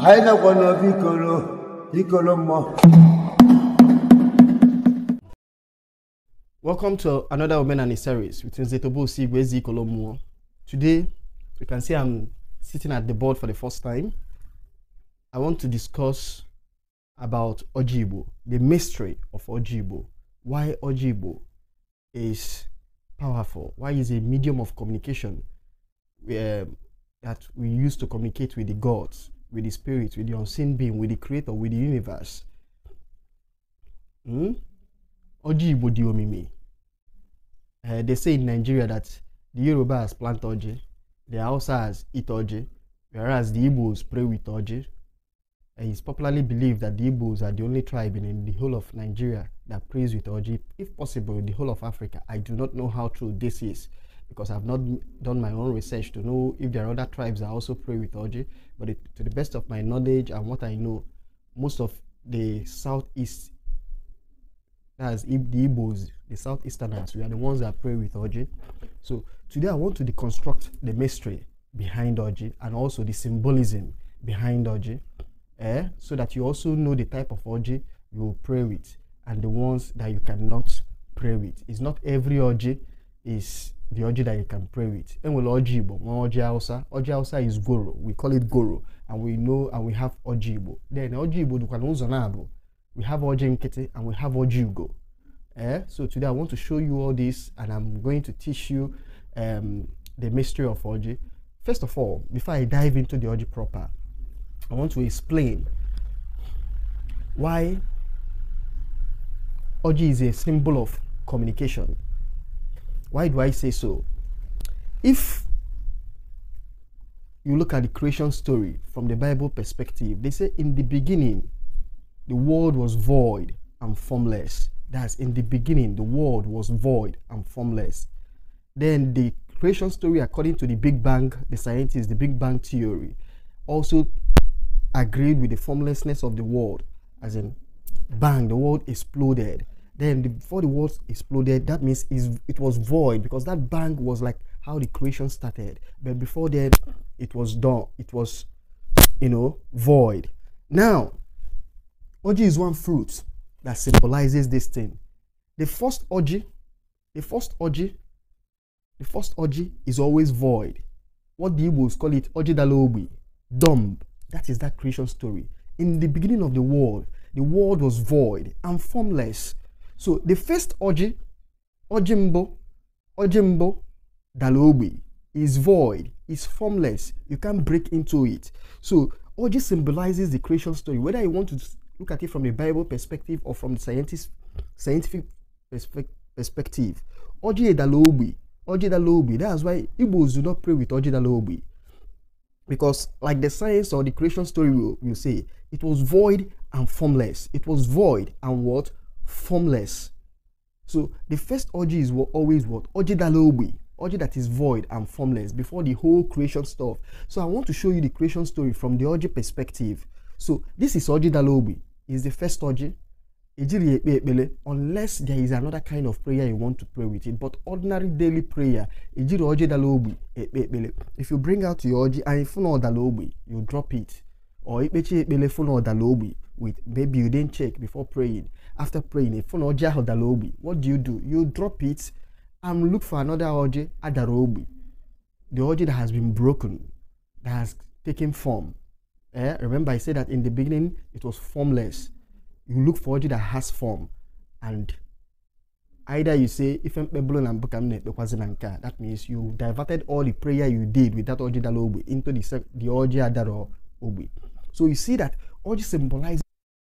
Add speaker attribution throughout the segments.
Speaker 1: vikolo Welcome to another Women and series with Nzetobo Sigwezi Kolomo. Today, you can see I'm sitting at the board for the first time. I want to discuss about Ojibo, the mystery of Ojibo, why Ojibo is powerful, why is a medium of communication um, that we use to communicate with the gods, with the spirit, with the unseen being, with the creator, with the universe. Hmm? Oji Ibodi Omimi. Uh, they say in Nigeria that the Yoruba has plant Oji, the Hausa has eat Oji, whereas the Igbos pray with Oji. And it's popularly believed that the Igbos are the only tribe in the whole of Nigeria that prays with Oji, if possible, in the whole of Africa. I do not know how true this is. because I've not done my own research to know if there are other tribes that also pray with Oji, But it, to the best of my knowledge and what I know, most of the southeast, that's the Igbos, the southeasterners, we are the ones that pray with Oji. So today I want to deconstruct the mystery behind Oji and also the symbolism behind Oji, eh? so that you also know the type of Oji you will pray with and the ones that you cannot pray with. It's not every Oji is the oji that you can pray with. Enwele orji Igbo, one orji Hausa. Orji Hausa is goro. We call it goro. And we know and we have orji Igbo. Then orji Igbo dukwana ụzọ na-abụ. We have orji nkịtị and we have orji Ugo. Eh? So today I want to show you all this and I'm going to teach you um, the mystery of oji. First of all, before I dive into the oji proper, I want to explain why oji is a symbol of communication. Why do I say so? If you look at the creation story from the Bible perspective, they say, in the beginning, the world was void and formless. That's in the beginning, the world was void and formless. Then the creation story, according to the Big Bang, the scientists, the Big Bang theory, also agreed with the formlessness of the world, as in, bang, the world exploded. Then the, before the walls exploded, that means it was void because that bang was like how the creation started. But before then, it was done. It was, you know, void. Now, orgy is one fruit that symbolizes this thing. The first orgy, the first orgy, the first orgy is always void. What the Igbos call it, orgy dalobi, dumb. That is that creation story. In the beginning of the world, the world was void and formless. So the first Oji, Ojimbo, Ojimbo, Dalobi is void, is formless. You can't break into it. So Oji symbolizes the creation story. Whether you want to look at it from a Bible perspective or from the scientist, scientific perspe perspective, Oji Dalobi, Oji Dalobi. That's why Igbos do not pray with Oji Dalobi. Because, like the science or the creation story will, will say, it was void and formless. It was void and what? formless. So the first orgy is what, always what? Orgy dalobi. Orgy that is void and formless before the whole creation stuff. So I want to show you the creation story from the orgy perspective. So this is orgy dalobi. Is the first orgy. Unless there is another kind of prayer you want to pray with it, but ordinary daily prayer, if you bring out your orgy and if you drop it, or with maybe you didn't check before praying, after praying a phone oje adara ogbi what do you do you drop it and look for another oje adara ogbi the oje that has been broken that has taken form eh? remember i said that in the beginning it was formless you look for oje that has form and either you say ife mkpebulu na a that means you diverted all the prayer you did with that oji dara into the, the oji adara ogbe so you see that oji symbolizes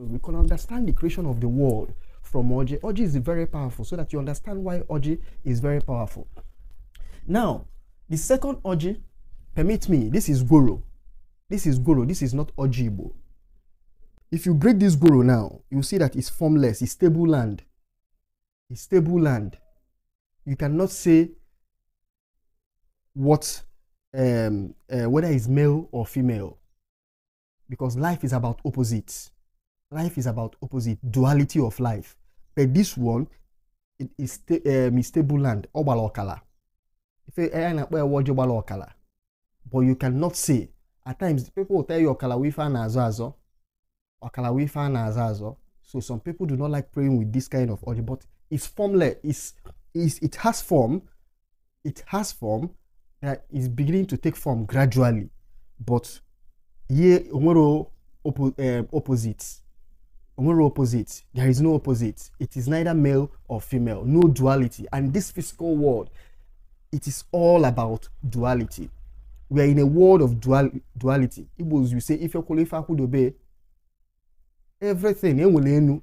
Speaker 1: we can understand the creation of the world from Oji. Oji is very powerful, so that you understand why Oji is very powerful. Now, the second Oji, permit me, this is Guru. This is Guru. this is not Ojibo. If you break this Guru now, you see that it's formless, it's stable land. It's stable land. You cannot say what um, uh, whether it's male or female because life is about opposites Life is about opposite, duality of life. But this one, it is sta- um, stable land, Obalokala. If Obalokala. But you cannot say. At times, people will tell you Okala wifa na azazo. Okala wifa na azazo. So some people do not like praying with this kind of order but it's formless. It's, it has form. It has form that is beginning to take form gradually. But here, omoro um, opposites. No opposite. There is no opposite. It is neither male or female. No duality. And this physical world, it is all about duality. We are in a world of dual duality. Igbos, you say, if your qualifier could obey everything,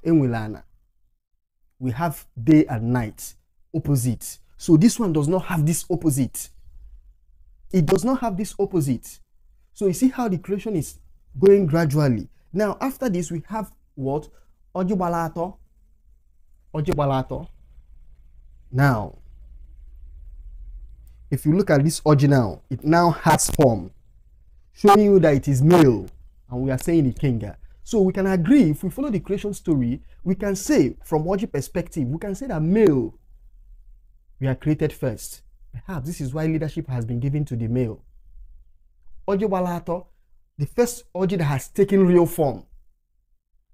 Speaker 1: we have day and night, opposite. So this one does not have this opposite. It does not have this opposite. So you see how the creation is going gradually. Now, after this, we have what? Ojubalato. Ojubalato. Now, if you look at this original, it now has form, showing you that it is male, and we are saying it kenga. So we can agree, if we follow the creation story, we can say from Oji perspective, we can say that male, we are created first. Perhaps this is why leadership has been given to the male. Oji the first Oji that has taken real form,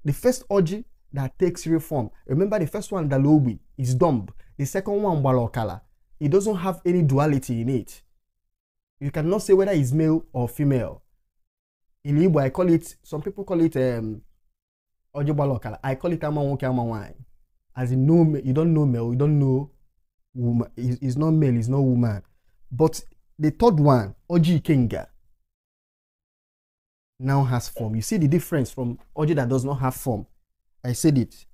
Speaker 1: The first orgy that takes reform, remember the first one, Dalobi, is dumb. The second one, Balokala, it doesn't have any duality in it. You cannot say whether it's male or female. In Igbo, I call it, some people call it um, Balokala. I call it Amanwoke Amanwai. As in, no, you don't know male, you don't know woman. It's, not male, it's not woman. But the third one, Oji Kinga now has form. You see the difference from object that does not have form. I said it.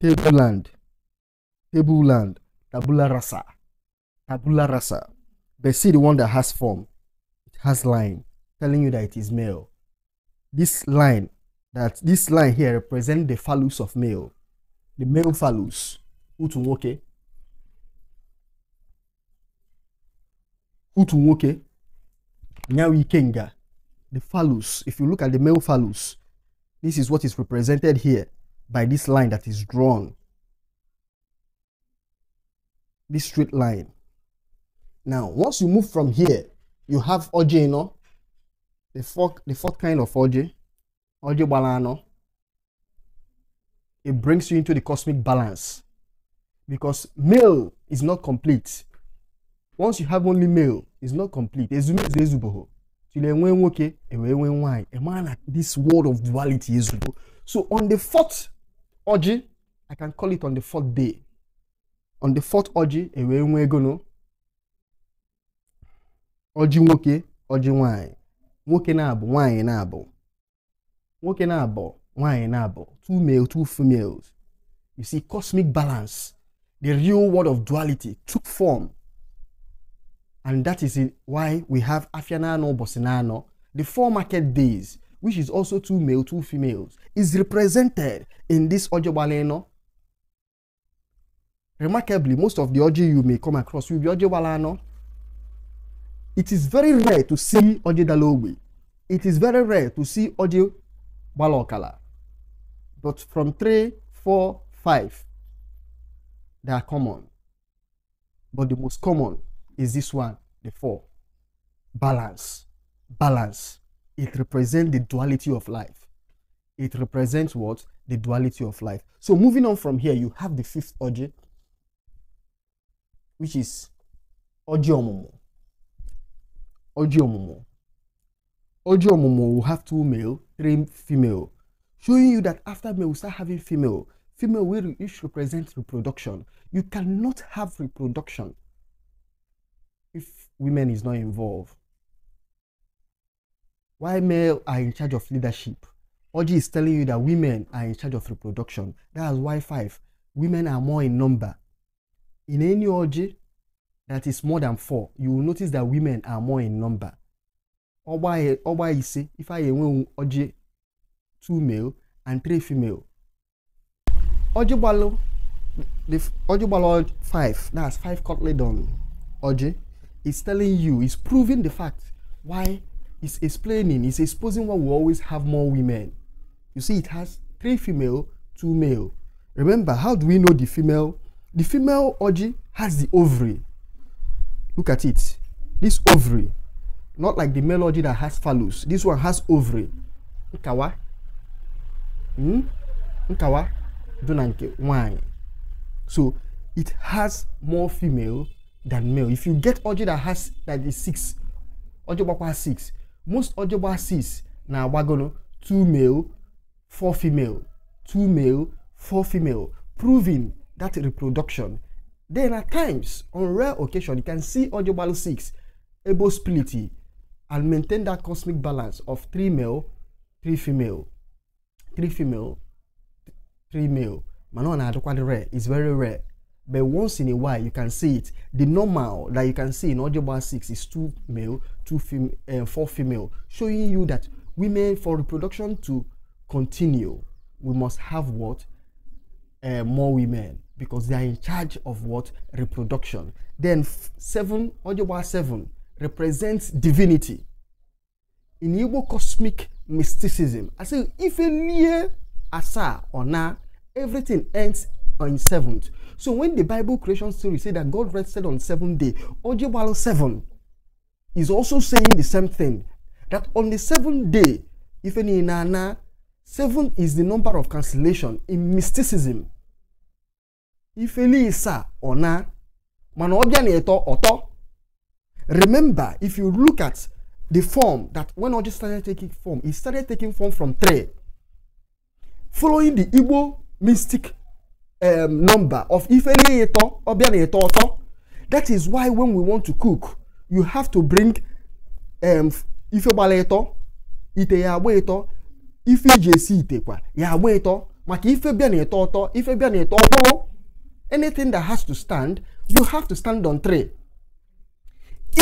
Speaker 1: Tableland, tableland, tabula rasa, tabula rasa. But see the one that has form. It has line, telling you that it is male. This line, that this line here represents the phallus of male, the male phallus. Utu nwoke. Nyawi Kenga, the phallus, if you look at the male phallus, this is what is represented here by this line that is drawn. This straight line. Now, once you move from here, you have Oje, The fourth, the fourth kind of Oje, Oje Balano. It brings you into the cosmic balance because male is not complete. Once you have only male, is not complete ezumezu ezubeghị till enwee nwoke ewee nwee nwaanyị emara na this world of duality ezugo so on the fourth orgy i can call it on the fourth day on the fourth orgy ewee nwee gono ọjị nwoke ọjị nwaanyị nwoke na-abụ nwaanyị na-abụ nwoke na-abụ nwaanyị na-abụ two male two females you see cosmic balance the real world of duality took form And that is why we have Afianano Bosinano, the four market days, which is also two male, two females, is represented in this Ojobaleno. Remarkably, most of the Oji you may come across will be Ojobalano. It is very rare to see Oji Dalowi. It is very rare to see Oji Balokala. But from three, four, five, they are common. But the most common is this one, the four. Balance. Balance. It represents the duality of life. It represents what? The duality of life. So moving on from here, you have the fifth urge, which is urge omumu. Urge omumu. Urge omumu will have two male, three female, showing you that after male, we start having female. Female, which represent reproduction. You cannot have reproduction if women is not involved? Why male are in charge of leadership? Oji is telling you that women are in charge of reproduction. That is why five. Women are more in number. In any orgy that is more than four, you will notice that women are more in number. Oba is say if I win orgy two male and three female. Orgy balo, the orgy balo five. That's five cutlet on orgy is telling you, is proving the fact why it's explaining, it's exposing why we always have more women. You see, it has three female, two male. Remember, how do we know the female? The female orgy has the ovary. Look at it. This ovary, not like the male orgy that has phallus. This one has ovary. Nkawa. Hmm? Nkawa. Dunanke. Why? So it has more female than male. If you get oje that has that is six, oje gbakwa has six. Most oje gba six na wagono two male, four female, two male, four female, proving that reproduction. Then at times, on rare occasion, you can see oje gbalo six, able splitty, and maintain that cosmic balance of three male, three female, three female, three male. Manon adokwa the rare is very rare but once in a while you can see it the normal that you can see in audiobar six is two male two fem- uh, four female showing you that women for reproduction to continue we must have what uh, more women because they are in charge of what reproduction then seven audiobar seven represents divinity in igbo cosmic mysticism i say if a lie asa or na, everything ends on seventh. So when the Bible creation story say that God rested on seventh day, Ojibwalo seven is also saying the same thing. That on the seventh day, if any nana, seven is the number of cancellation in mysticism. Ifeli isa ona, mana eto oto. Remember, if you look at the form that when Oji started taking form, he started taking form from three. Following the Igbo mystic um, number of ife ni eto obia oto that is why when we want to cook you have to bring um, ife gbala ite ya agba eto ife iji esi ite kwa ya agba eto maka ife bịa na eto ọtọ ife bịa na eto anything that has to stand you have to stand on tray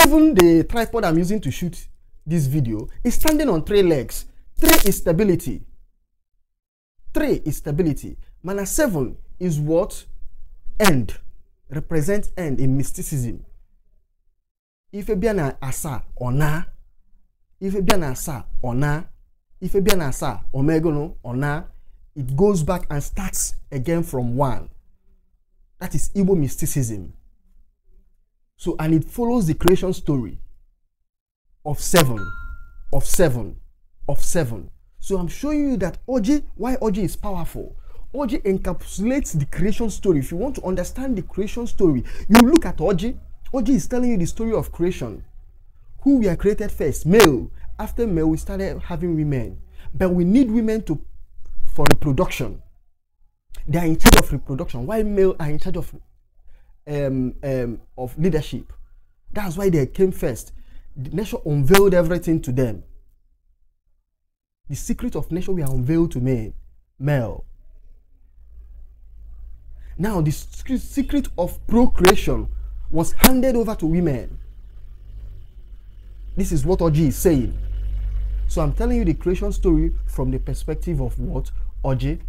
Speaker 1: even the tripod i'm using to shoot this video is standing on three legs three is stability three is stability mana seven is what end represents end in mysticism. Ife bịa na asaa ọ naa. Ife bịa na asaa ọ naa. Ife bịa na or omegonu or na, It goes back and starts again from one. That is Igbo mysticism. So, and it follows the creation story of seven, of seven, of seven. So I'm showing you that Oji, why Oji is powerful. Oji encapsulates the creation story. If you want to understand the creation story, you look at Oji. Oji is telling you the story of creation. Who we are created first, male. After male, we started having women. But we need women to for reproduction. They are in charge of reproduction. Why male are in charge of um, um, of leadership? That's why they came first. The nature unveiled everything to them. The secret of nature we are unveiled to men, male. Now, the secret of procreation was handed over to women. This is what Oji is saying. So I'm telling you the creation story from the perspective of what? Oji.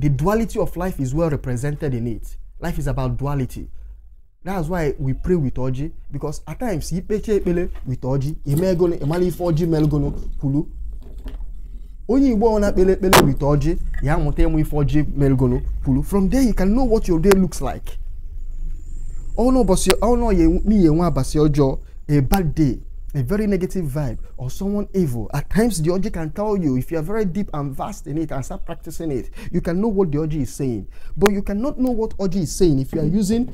Speaker 1: The duality of life is well represented in it. Life is about duality. That's why we pray with Oji because at times, with Oji, Imelgono, Imali Foji, Melgono, Kulu, onye igbo ọ na-akpele ekpele wit ọjị ya mụta ịmụ ife ọjị merigolo kwuru from there you can know what your day looks like ọnụọbọsị nwe abasị ọjọọ a bad day a very negative vibe or someone evil at times the Oji can tell you if you are very deep and vast in it and start practicing it you can know what the Oji is saying but you cannot know what Oji is saying if you are using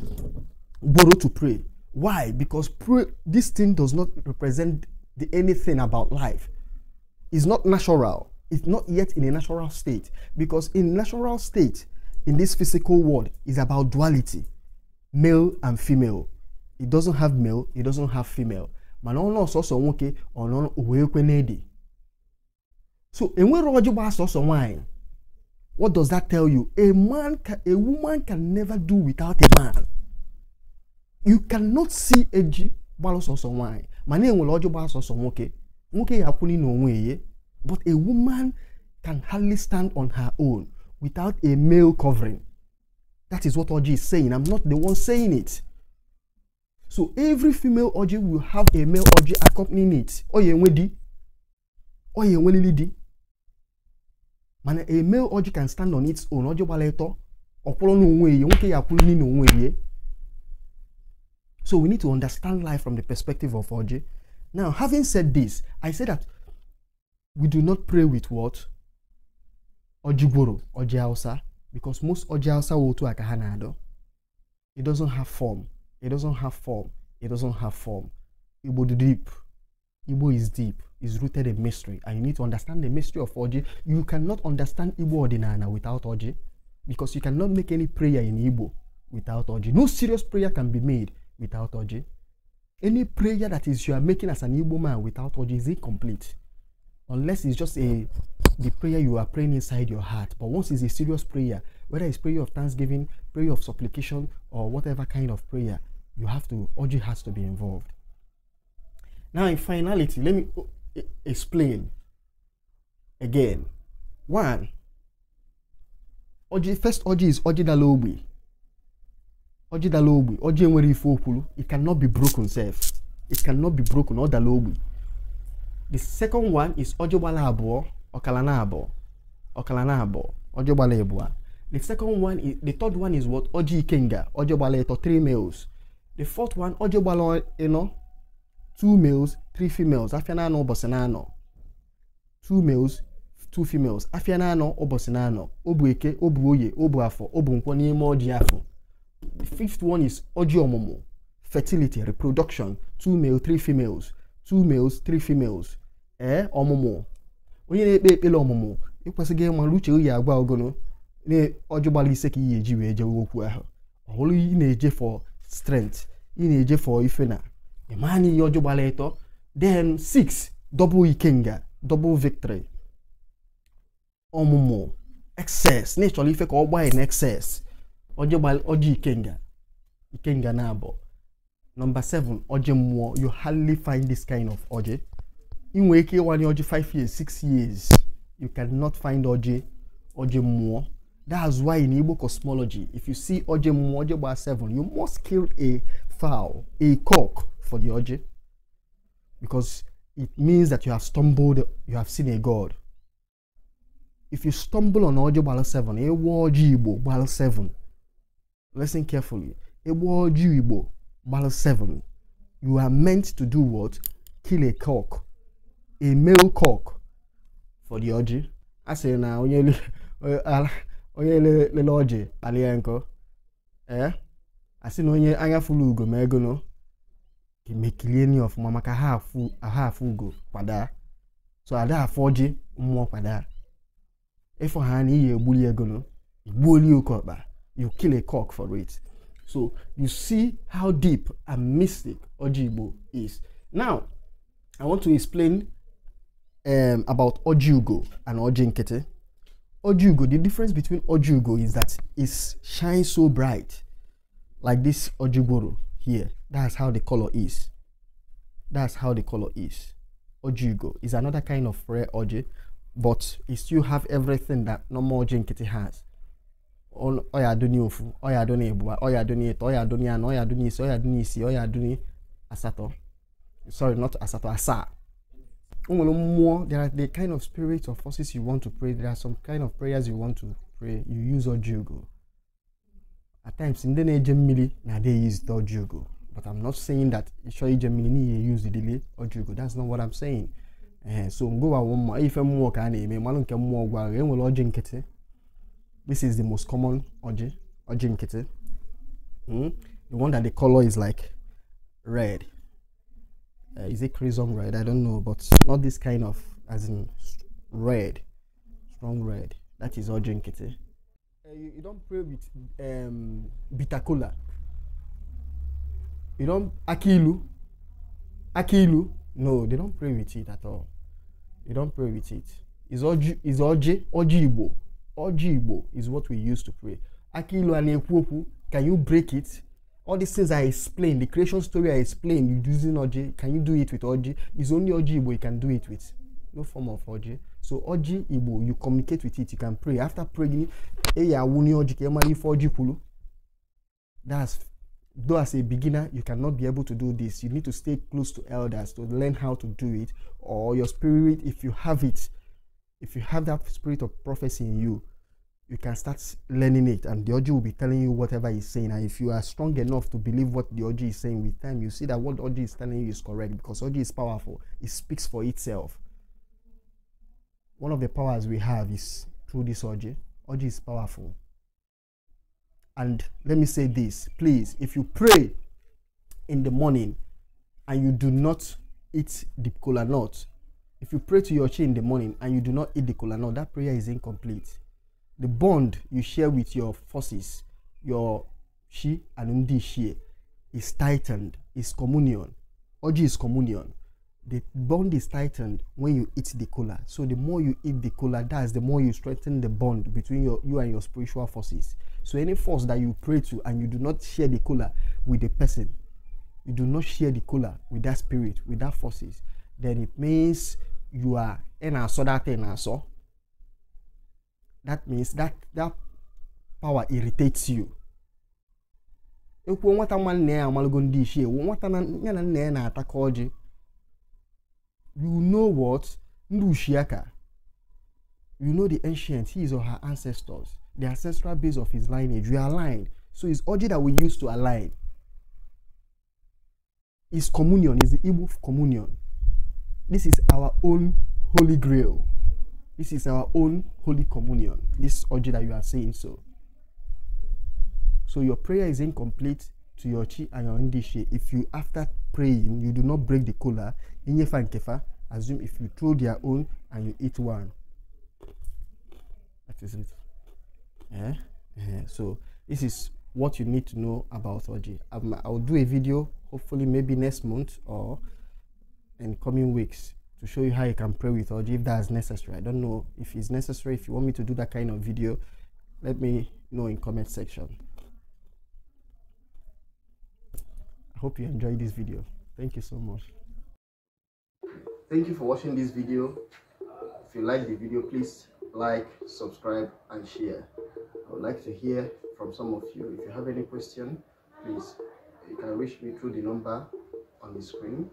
Speaker 1: borrow to pray why because pray, this thing does not represent the, anything about life it's not natural is not yet in a natural state because in natural state in this physical world is about duality male and female it doesn't have male it doesn't have female mana ọ nọ sọsọ nwoke ọ nọ uwe ekwe n'ede so enwere ọjị gbaa sọsọ nwaanyị what does that tell you a man can, a woman can never do without a man you cannot see eji gbalụ sọsọ nwaanyị mana enwere ọjị gbaa sọsọ nwoke nwoke ya akwụli n'onwe ya But a woman can hardly stand on her own without a male covering. That is what Oji is saying. I'm not the one saying it. So every female Oji will have a male Oji accompanying it. Oye nwedi. Man, a male Oji can stand on its own. Oji waleto. Ọkwụrụ n'onwe ya. Nwoke ya akwụrụ n'ime onwe So we need to understand life from the perspective of Oji. Now, having said this, I say that we do not pray with what? Ojigboro, Ojiausa, because most Ojiausa to akahanado. It doesn't have form. It doesn't have form. It doesn't have form. Igbo deep. Ibo is deep. It's rooted in mystery. And you need to understand the mystery of Oji. You cannot understand Ibo Ordinana without Oji. Because you cannot make any prayer in Ibo without Oji. No serious prayer can be made without Oji. Any prayer that is you are making as an Ibo man without Oji is incomplete unless it's just a the prayer you are praying inside your heart. But once it's a serious prayer, whether it's prayer of thanksgiving, prayer of supplication, or whatever kind of prayer, you have to urge has to be involved. Now, in finality, let me oh, explain again. One, oji first oji is oji dalobi. Oji dalobi, oji enwere ife okwulu. It cannot be broken, self. It cannot be broken, or dalobi. The second one is Ojogbala Abuo, Okalana Abuo, Okalana Abuo, Ojogbala Ebua. The second one is, the third one is what? Oji Ikenga, Ojogbala Eto, three males. The fourth one, Ojogbala Eno, two males, three females. Afianano, Bosenano. Two males, two females. Afianano, Obosenano. Obueke, Obuoye, Obuafo, Obunkwo, Nimo, Ojiafo. The fifth one is Oji Omomo, fertility, reproduction. Two male, three females. Two males, three females. ee eh, ọmụmụ onye na-ekpe ekpere ọmụmụ ịkwesịghị ịmara uche oyi agwa ogono ọjọ gbara ise ka ị ga-eji wee jewe okwu ahụ ọhụrụ ị na-eje for strength ị na-eje for ife na ịma ihe ọjọ gbara ịtọ then six double ikenga double victory ọmụmụ excess na ịchọrọ ife ka ọ gbaa na excess ọjọ ikenga ikenga na abụọ nọmba 7 ọjị mmụọ you hardly find this kind of ọjị In ike one, ọjị 5 years 6 years you cannot find OJ, OJ more. that's why in igbo cosmology if you see OJ more, OJ bar 7 you must kill a fowl a cock for the OJ, because it means that you have stumbled you have seen a god if you stumble on OJ bar 7 a ọjị igbo bar 7 listen carefully a ọjị igbo bar 7 you are meant to do what kill a cock a male cock for the orgy a sị na onye onye lele ọjị kpalie nkọ ee eh? a sị na onye anya fụlụ ugo ma ego nọ ga-emekilie ni ọfụma maka ha afụ ugo kwada so ada afọ ọjị mmụọ kwada ịfọ ha na iyi egbuli ego nọ igbuoli oke ọkpa you kill a cock for it so you see how deep and mystic ọjị igbo is now i want to explain um, about Ojugo and Ojinkete. Ojugo, the difference between Ojugo is that it shines so bright, like this Ojiboro here. That's how the color is. That's how the color is. Ojugo is another kind of rare Oji, but it still have everything that normal Ojinkete has. Oya adoni ofu, oya adoni ebua, oya adoni eto, oya adoni ano, oya adoni isi, oya adoni isi, oya adoni asato. Sorry, not asato, asa there are the kind of spirits or forces you want to pray. There are some kind of prayers you want to pray. You use Ojugo. At times, in the Gemini, now they use the Ojugo. But I'm not saying that Shoyi Gemini use the delay Ojugo. That's not what I'm saying. Uh, so go one more. If I'm more can I mean, Malon can more go. This is the most common Oji Oji hmm? The one that the color is like red uh, is it crimson red? I don't know, but not this kind of as in red, strong red. That is all drink it. Eh? Uh, you, you don't pray with um, bitter cola. You don't akilu, akilu. No, they don't pray with it at all. You don't pray with it. Is oji is oji oji igbo. Oji igbo is what we use to pray. Akilu and ekwopu. Can you break it? all these things I explain, the creation story I explain. you using Oji, can you do it with Oji? It's only Oji Igbo you can do it with. No form of Oji. So Oji Igbo, you communicate with it, you can pray. After praying, Eya Wuni Oji, Kemali Foji Kulu. That's though as a beginner you cannot be able to do this you need to stay close to elders to learn how to do it or your spirit if you have it if you have that spirit of prophecy in you you can start learning it and the Oji will be telling you whatever he's saying and if you are strong enough to believe what the Oji is saying with time you see that what Oji is telling you is correct because Oji is powerful it speaks for itself one of the powers we have is through this Oji Oji is powerful and let me say this please if you pray in the morning and you do not eat the cola nut if you pray to your chi in the morning and you do not eat the cola nut that prayer is incomplete the bond you share with your forces, your she and undi she, is tightened, is communion. Oji is communion. The bond is tightened when you eat the cola. So the more you eat the cola, that's the more you strengthen the bond between your, you and your spiritual forces. So any force that you pray to and you do not share the cola with the person, you do not share the cola with that spirit, with that forces, then it means you are in a so that in a so that means that that power irritates you ekwuo nwata nwa nna ya amalago ndị ichie nwata ya na nna ya na-ataka ọjị you know what ndị ushiaka you know the ancient his or her ancestors the ancestral base of his lineage we align. so it's Oji that we use to align is communion is the Igbo communion this is our own holy grail This is our own Holy Communion, this orgy that you are saying so. So your prayer is incomplete to your chi and your indishi if you, after praying, you do not break the kola, inyefa and kefa, assume if you throw their own and you eat one. That is it. Eh? eh? So this is what you need to know about orgy. Um, I'll do a video hopefully maybe next month or in coming weeks to show you how you can pray with Oji if that's necessary. I don't know if it's necessary. If you want me to do that kind of video, let me know in comment section. I hope you enjoyed this video. Thank you so much. Thank you for watching this video. If you like the video, please like, subscribe and share. I would like to hear from some of you. If you have any question, please, you can reach me through the number on the screen.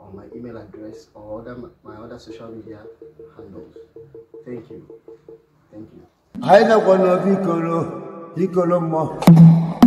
Speaker 1: on my email address or other, my other social media handles. Thank you. Thank you.